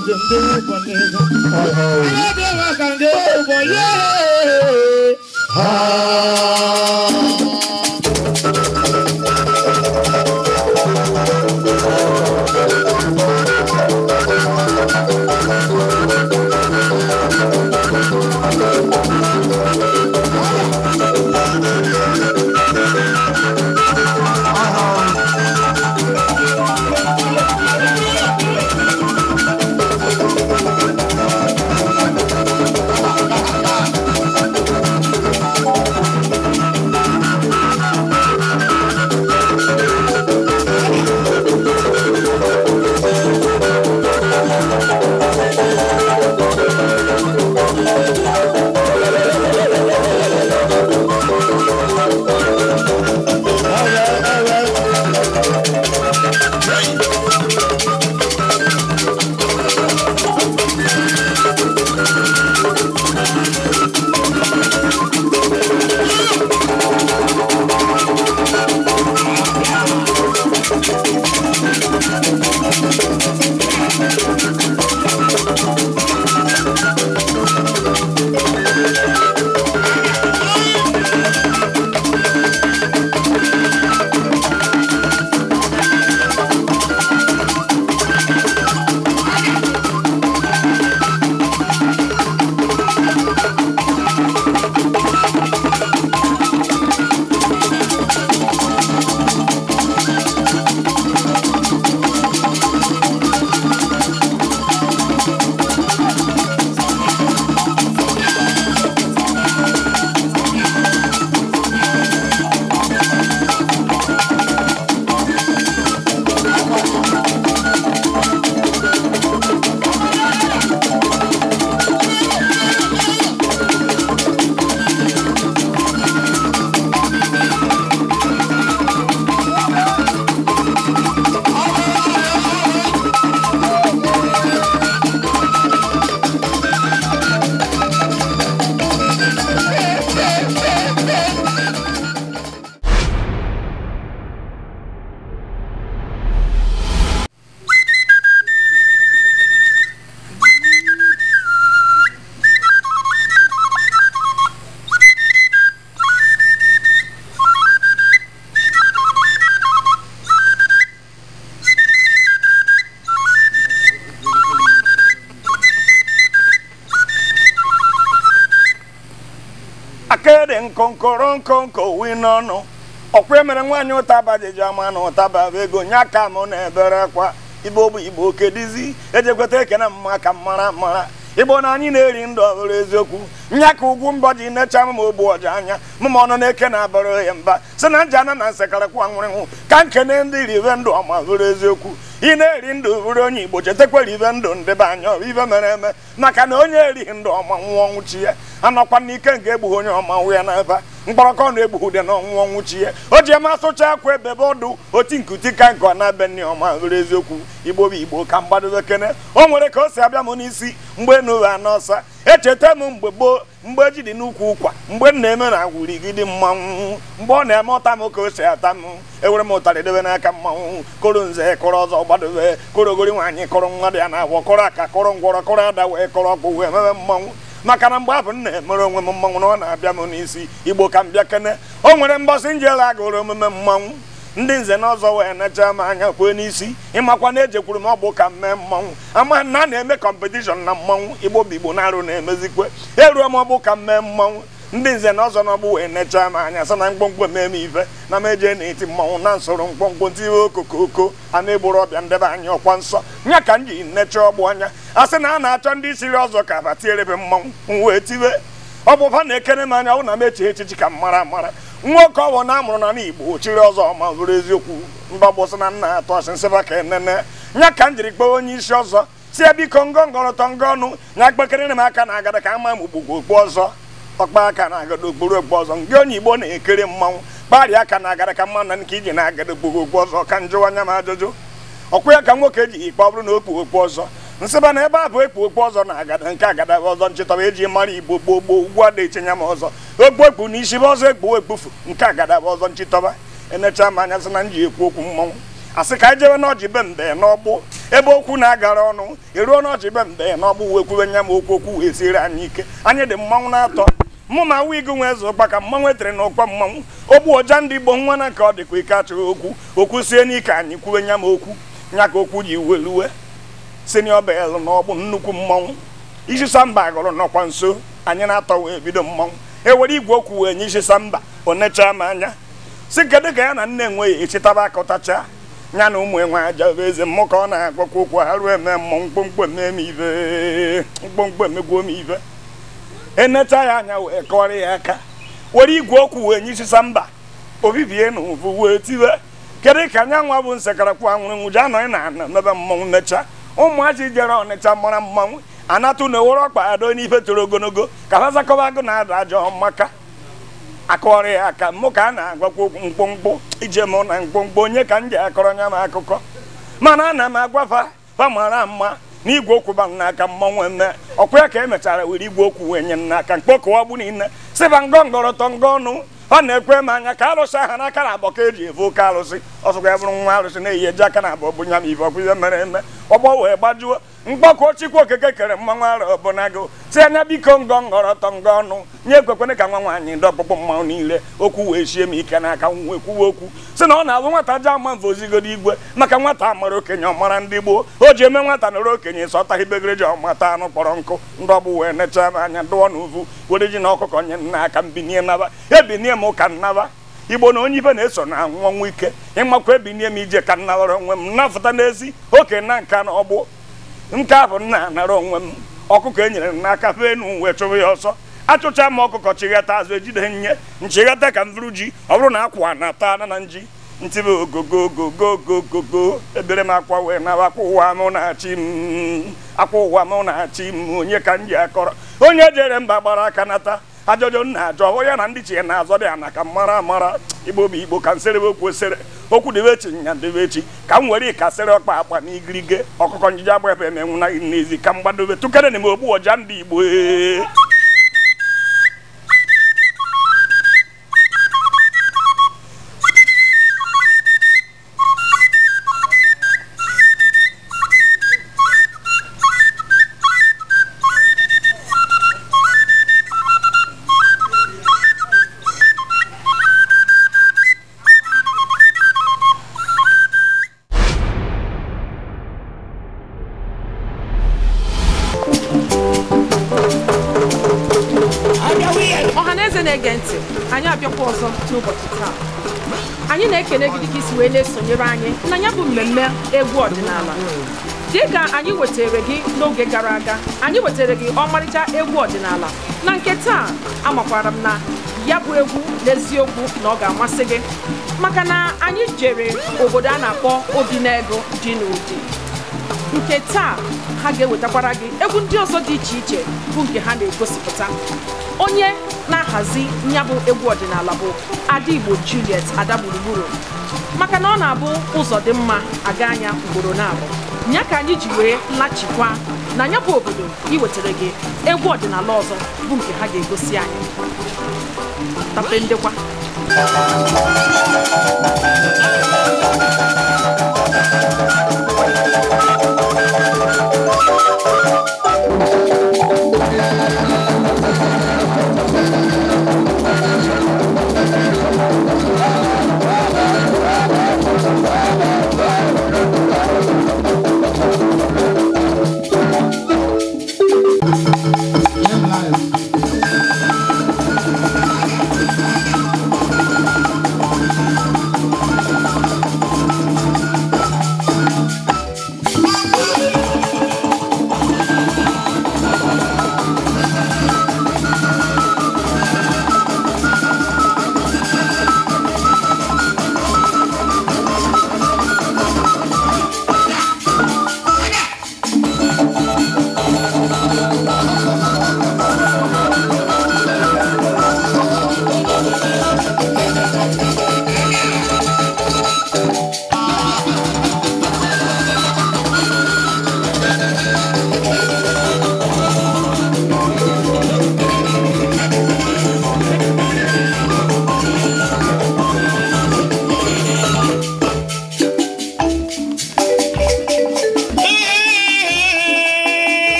I ndị ụbọchị ego. Ọ bụ ọga ndị nkoro nko nko wi n'ọnụ ọkwa emere nwaanyị ụtaba jiji ama na ụtaba bụ ego nya aka mụ na ebere akwa igbo bụ igbo kedizi ejekweta ekene mma ka mara mara igbo na anyị na-eri ndụ ọhụrụ eziokwu nya ka ugwu mbọ ji nechaa m ma ogbu ọja anya mụma ọnụ na-eke na-abụrụ ya mba si na nji ana na nsekarịkwa nwụrịnwụ ka nkene ndị rive ndụ ọma bụrụ eziokwu ị na-eri ndụ bụrụ onye igbo chetekwara ibe ndụ ndị be anya ibe mere eme maka na onye erighị ndụ ọma nwụọ ọnwụchi ya anọkwa n'ike nke egbughị onye ọma nwụ ya n'ebe mkpọrọkọ na-egbughi dị na ọnwụ ọnwụchi ya o ji eme asụcha akwa ebe ọdụ oti nkuti ka nke ọ na-abe nne ọma bụrụ eziokwu igbo bụ igbo ka mgbadobe kene o nwere ka o si abịa m n'isi mgbe enu ụwa n'ọsa echeta m mgbe gboo mgbe ji dị n'ukwu ụkwa mgbe m na-eme na agwụrigide mmanwụ mgbe ọ na-eme ọta m ka o si ata m ewere m ụtarị dobe n'aka mmanwụ koro nze kụrụ ọzọ gbadobe korogori nwaanyị kụrụ mmadụ ya na-agwọ kụrụ aka kụrụ ngwọrọ kụrụ ada wee kụrụ ọkpụ wee mebe mmanwụ maka na mgbe abụ m na-emere onwe m mmanwụ na ọ na-abịa m n'isi igbo ka m bịa kene o nwere mbọsị njela agụrụ omume mmanwụ ndị nze na ọzọ wee necha m anya kwee n'isi ịmakwa na ejekwuru m ọgbụ ka m mee mmanwụ ama na a na-eme kọmpetishọn na mmanwụ igbo bụ na-arụ na-emezikwe eruo m ọgbụ ka m mee mmanwụ ndị nze na ọzọ na ọgbụ wee necha m anya sa na mkpọmkpọ mee m ife na m eje na-eti mmanwụ na nsoro mkpọmkpọ ntiwe okokoko a na-egboro ọbịa ndebe anya ọkwa nsọ nya ka m ji necha ọgbụ anya a sị na a na-achọ ndị siri ọzọ ka abatiere m mmanwụ m wee tiwe ọ bụ fa na ekere m anya ọ na m eche echichi ka m mara mara nwoke ọwụ na amụrụ na n'Igbo chiri ọzọ ma zụrụ eziokwu mba gbụsị na nna atọ ọchị nsịba ka enene ya ka m jiri kpọọ onye isi ọzọ si ya biko ngọ tọ ngọ ọnụ nya kpekere m aka na agada ka ama m ugbogbo okpu ọzọ ọkpa aka na agada okporo okpu ọzọ ngị onye Igbo na-ekere mmanwụ kparịa aka na agada ka mma na nke iji na agada okporo okpu ọzọ ka njụwa anya m ajụjụ ọkwụ ya ka nwoke ji ikpe ọ bụrụ na okpu okpu ọzọ nsịba na ebe a bụ ekpu okpu ọzọ na agada nke agada ọzọ nchịtọba eji mara igbo gboo gboo ugwu a na-echenya m ọzọ okpu ekpu na isi bụ ọzọ ekpu ekpufu nke agada ọzọ nchịtọba emecha m anya sị na nji ekwu okwu mmọnwụ asị ka anyị jewe n'ọjị be mbe n'ọgbụ ebe okwu na-agara ọnụ eruo n'ọjị be mbe n'ọgbụ wee kwuwe nya m okwu okwu wee siri anyị ike anyị dị mmanwụ na-atọ mụ ma nwa igu nwe eze ụkpa ka mmanwụ etere na ụkpa mmanwụ ogbu ọja ndị igbo nwa na ka ọ dịkwa ike achọghị okwu okwu sie n'ike anyị kwuwe nya m okwu nya ka okwu ji weluwe senio bel bụ nnukwu mmọnwụ isi samba gụrụ nọkwa nso anyị na-atọ wee bido mmọnwụ e nwere igwe okwu wee nye isisa mba onecha m anya si kedu ka ya na nne enweghị echitaba akọtacha oh, ya na ụmụ enwe aja eze mmụ ka ọ na-agwakwa okwu ha ruo eme mmọnwụ mkpomkpo eme m ive mkpomkpo emegbuo m ive enecha ya anya wee kọrọ ya aka were igwe okwu wee nye isisa mba obibie na ụvụ wee tiwe kedu ka anya nwa bụ nsekarakwu anwụrụ nwụji anọghị na ana mebe mmọnwụ necha ụmụazị jere ọnịcha mara mmanwụ anatụ na owere ọkpa ado n'ife toro ogologo ka ha zakọba agụ na-ada ajọ maka akọrọ ya aka mụ ka a na-agwakwa okwu mkpụmkpụ ije mụ na mkpụmkpụ onye ka m ji akọrọ nya m akụkọ mana ana m agwafa fa mara mma na igwe okwu ba n'aka mmanwụ eme ọkwa ya ka emechara were igwe okwu wee nye m n'aka mkpọkọwagbu niile sịba ngọ ngọrọtọ ngọ ọnụ ọ na-ekwe m anya ka arụsị aha n'aka na abọ ka ji evu oke alụsị ọsọkwa ya bụrụ nwa arụsị na-eyi eji aka na abọ bụnya m ibe ọkụzie mere eme ọgbọ wee gbajuo mgbakọ chikwu okeke kere mmanwụ arọ bụ na gụ tie anya biko ngọ ngọrọtọ ngọ ọnụ nye ekwekwene ka nwa nwaanyị ndị ọkpụkpụ mmanwụ niile okwu wee sie m ike n'aka nwee kwuwe okwu si na ọ na-alụ nwata ji ama ozigodo igwe maka nwata mara okenye ọmara ndị gboo o ji eme nwata nọrọ okenye sọtaghị begereji ọmata anụ kpọrọ nkụ ndị ọgbụ wee nechaa m anya dụọ na uvu were ji na ọkụkọ nye nna aka mbinie naba ebinie m ụka nnaba igbo na onye ibe na-eso na anwụ ike ịmakwa ebinie m ije ka nnawara onwe m nnafụta n'ezi okenye na nka na ọgbụ nke a bụ nna anara onwe m ọkụkọ e nyere m n'aka fee enu wee chụbụ ya ọsọ achụcha m ọkụkọ chighata azụ ejide nye nchighata ka m bụrụ ji ọ bụrụ na akwa na ata ana na nji ntịbe ogogogogogogogogo ebere m akwa wee na akwa ụwa m na-achị m akwa ụwa m na-achị m onye ka m ji akọrọ onye jere mba gbara aka nata ajọjọ nna ajọ hụ ya na ndị chi na-azọ dị ana ka mara amara igbo bụ igbo ka nsere okwu osere okwu debe echi nya debe echi ka m were sere ọkpa akpa na igirige ọkụkọ njije agba ebe emenwu na n'ezi ka m gbadobe tụkere na m ogbu ọja ndị igbo ee anyị na ekene gị dịka isi wee na-esonyere anyị na ya bụ mmemme egwu ọdịnala dịka anyị wetere gị n'oge gara aga anyị wetere gị ọmarịcha egwu ọdịnala na nke taa amakwara m na ya bụ egwu n'eziokwu na ọ ga-amasị gị maka na anyị jere obodo a na-akpọ obi ego dị n'ụdị nke taa ha ga-ewetakwara gị egwu ndị ọzọ dị iche iche bụ nke ha na-egosipụta onye na-ahazi nyabụ egwu ọdịnala bụ ada igbo juliet ada gburugburu maka na ọ na-abụ ụzọ dị mma aga anya ugboro na-abụ ya ka anyị ji wee lachikwa na ya obodo iwetara gị egwu ọdịnala ọzọ bụ nke ha ga-egosi anyị tape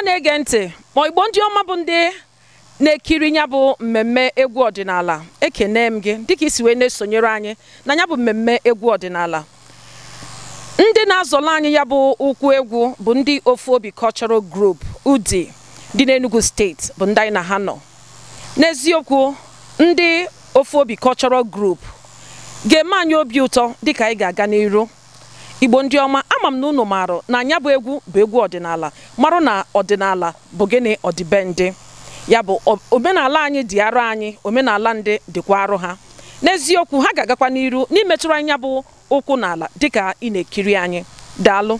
a na-ege ntị ma igbo ndị ọma bụ ndị na-ekiri ya bụ mmemme egwu ọdịnala ekene m gị dịka isi wee na-esonyere anyị na ya bụ mmemme egwu ọdịnala ndị na-azọla anyị ya bụ ụkwụ egwu bụ ndị ofu obi cultural group udi dị n'Enugu steeti bụ ndị anyị na ha nọ n'eziokwu ndị ofu obi cultural group ga-eme anyị obi ụtọ dịka anyị ga-aga n'iru igbo ndị ọma ama m na unu marụ na anya bụ egwu bụ egwu ọdịnala marụ na ọdịnala bụ gịnị ọdịbendị ya bụ omenala anyị dị arụ anyị omenala ndị dịkwa arụ ha n'eziokwu ha ga-agakwa n'iru n'imetụrụ anya bụ ụkwụ n'ala dịka ị na-ekiri anyị daalụ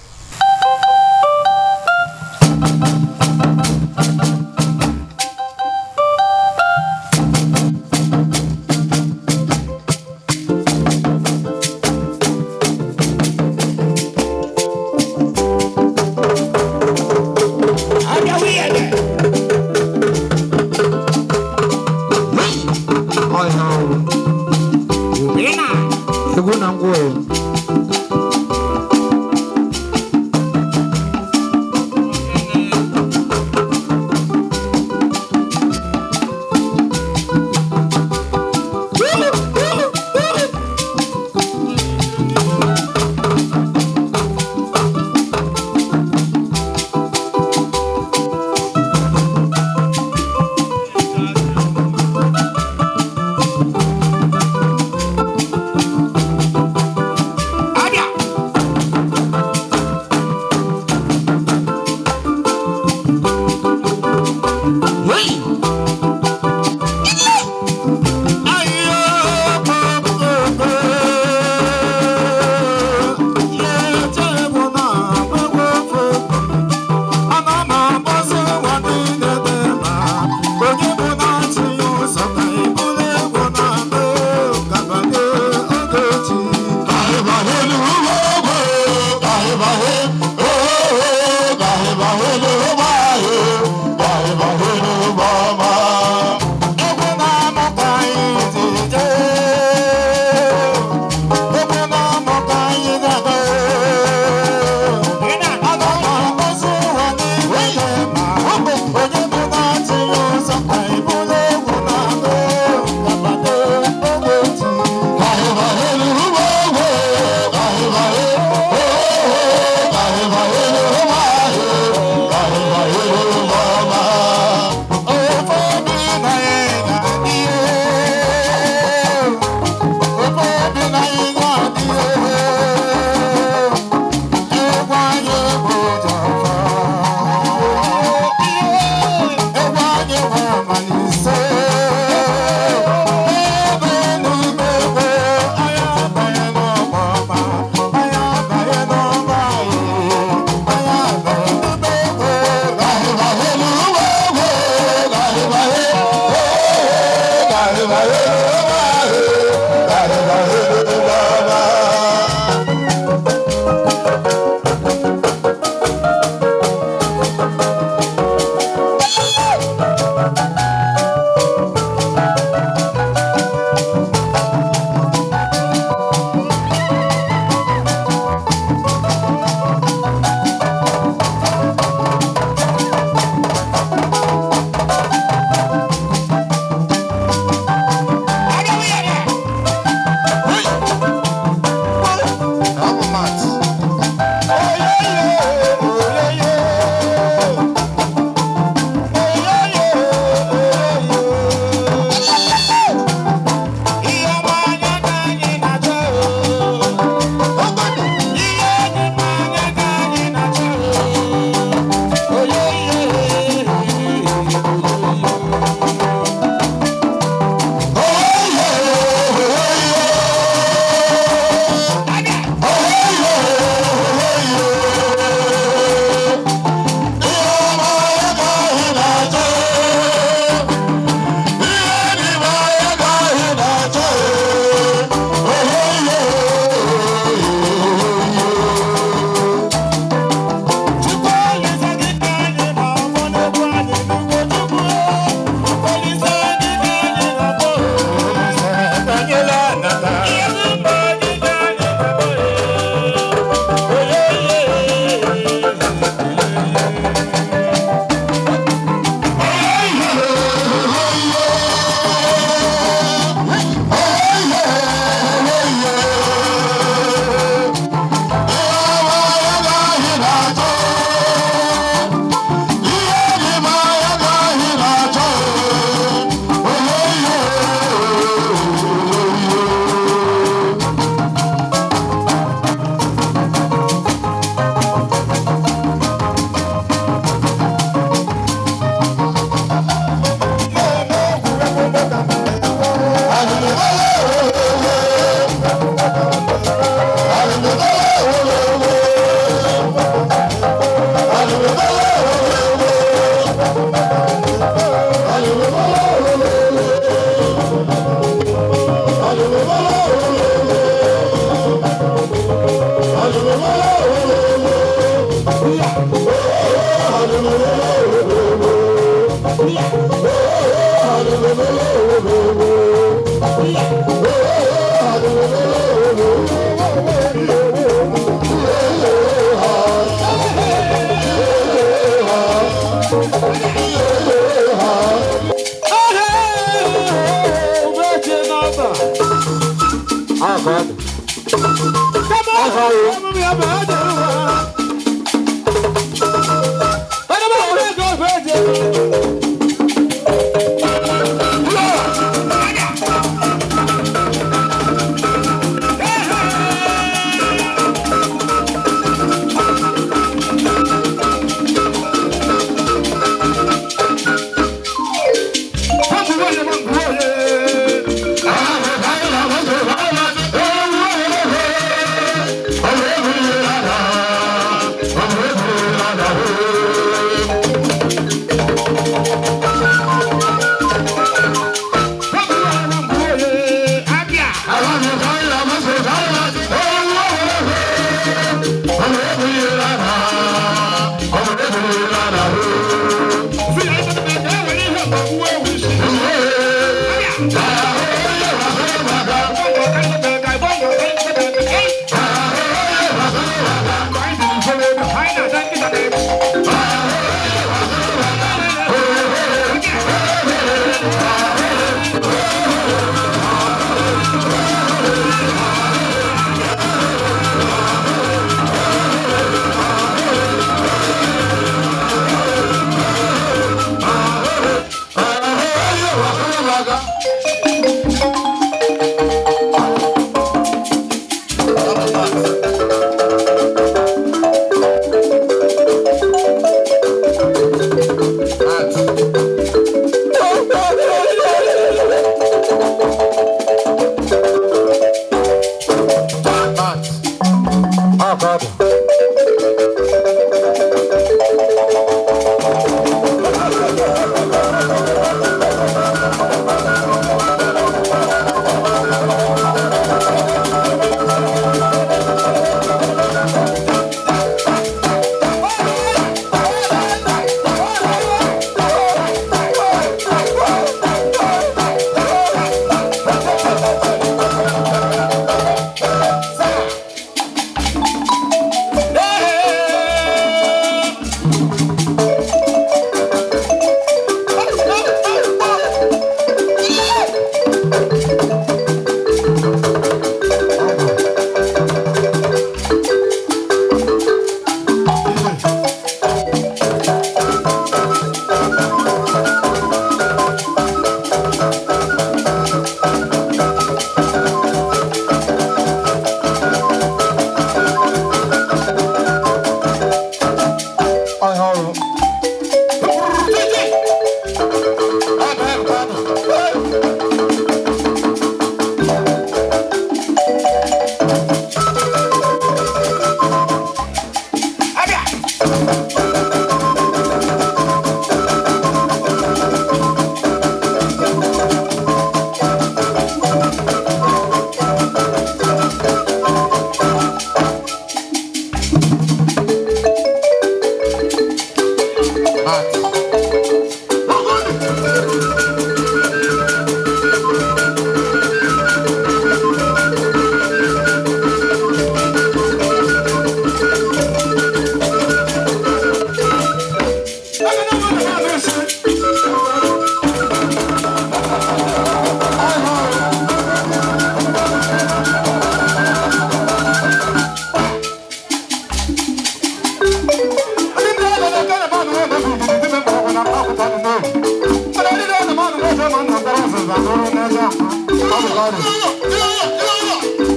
lọ́rùn.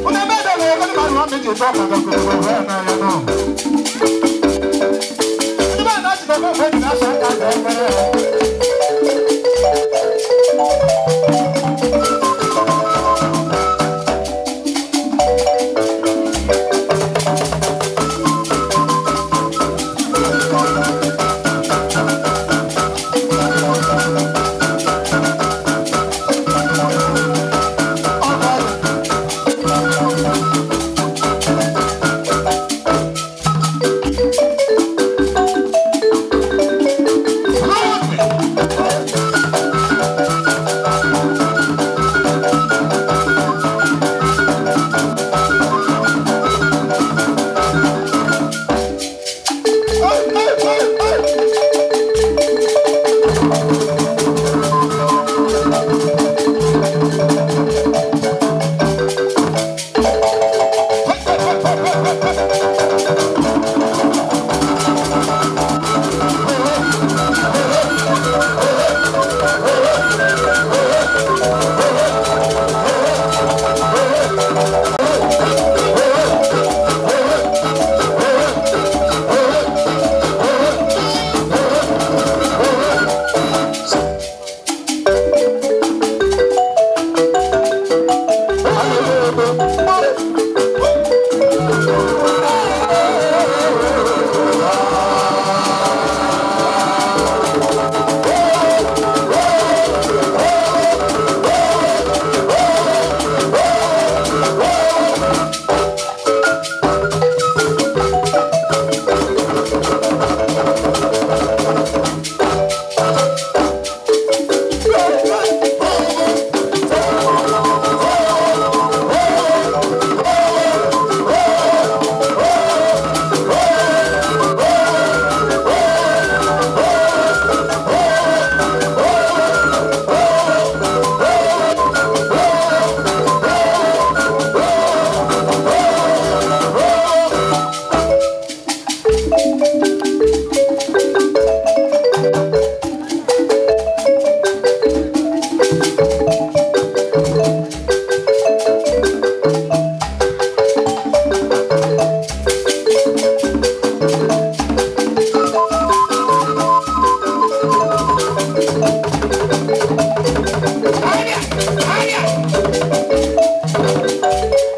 Ọ̀nà bẹ́ẹ̀ bẹ́ẹ̀ lọ́yẹ kọ́ni màrún wọn méjì tó ọ̀kadà kò thank you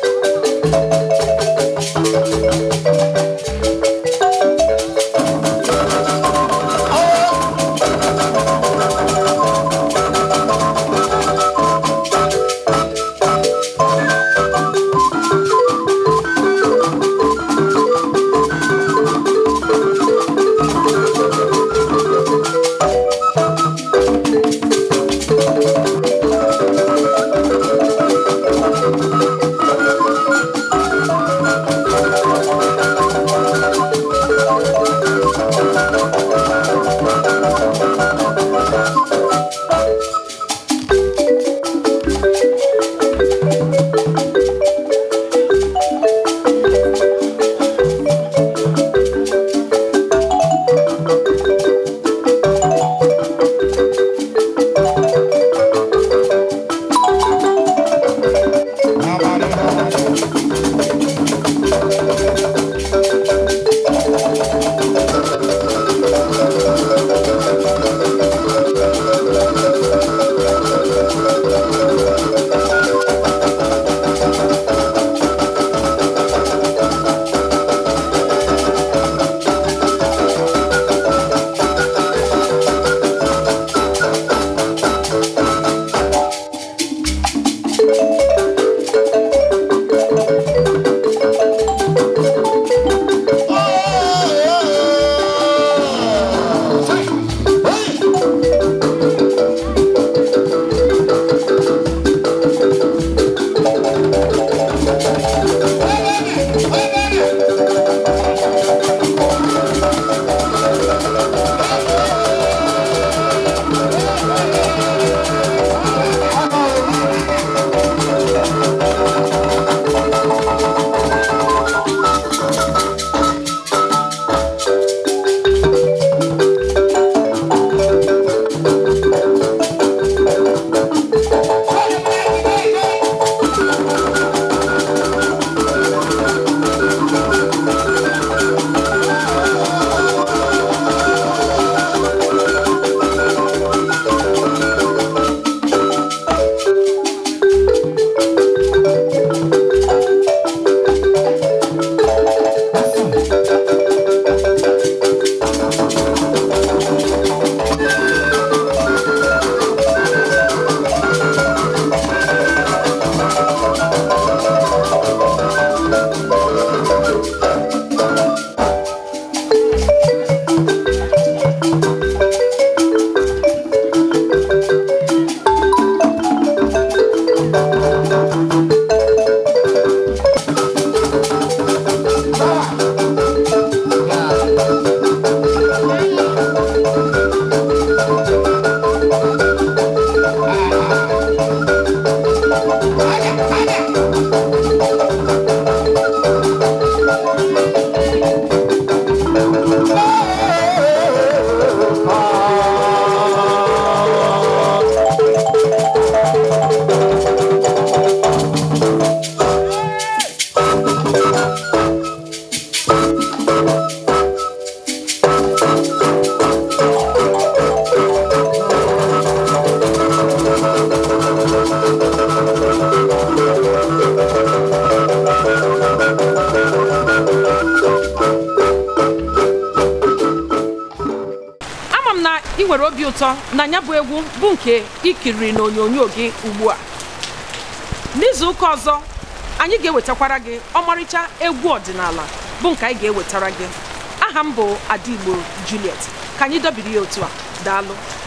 nwere obi ụtọ na nya bụ egwu bụ nke ikiri na onyonyo gị ugbu a n'izu ụka ọzọ anyị ga-ewetakwara gị ọmarịcha egwu ọdịnala bụ nke anyị ga-ewetara gị aha m bụ Adigbo Juliet ka anyị dobiri ya otu a daalụ